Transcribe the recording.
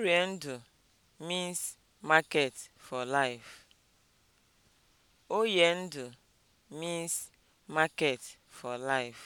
Ikwere Oye ndụ means market for life.